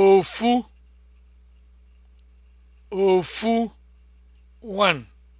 ofu ofu one